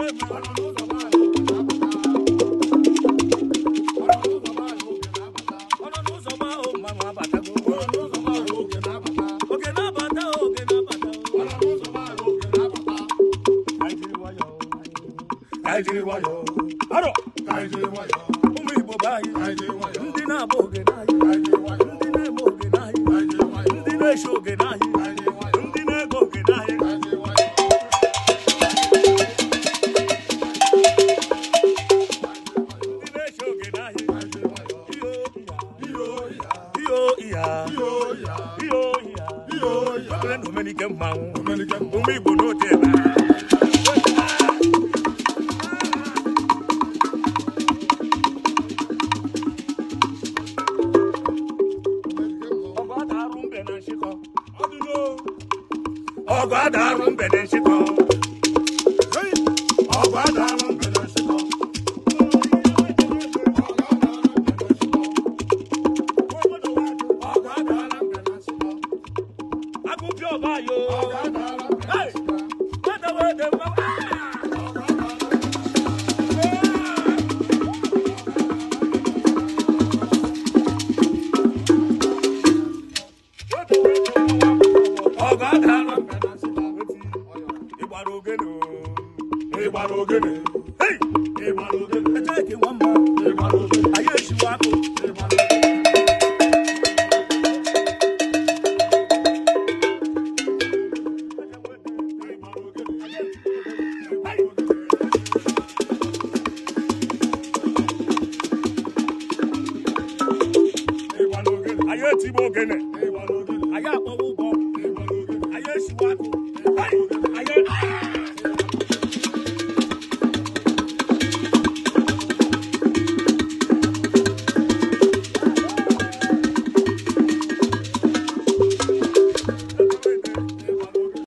Kaijiri wayo, aro. Kaijiri wayo, umu ibo bayi. ndi na abo oge nayi. Kaijiri ndi na emo oge nayi. ndi na esho oge nayi. ndi na ego oge nayi. omenike mmanwụ ụmụ na kúpìọ̀ báyò. gbọ́dọ̀ wọ́n dé mọ́. Ìgbàlódé ògèdè. Ìgbàlódé ògèdè. Ìgbàlódé ògèdè. Ẹjẹ́ kí wọ́n mọ. Ìgbàlódé ògèdè. Ayé ìṣúwà kò. ayé tí mo gẹlẹ̀ ayé àpọ̀wọ́ bọ̀ ayé ìṣúwàtò.